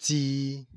tii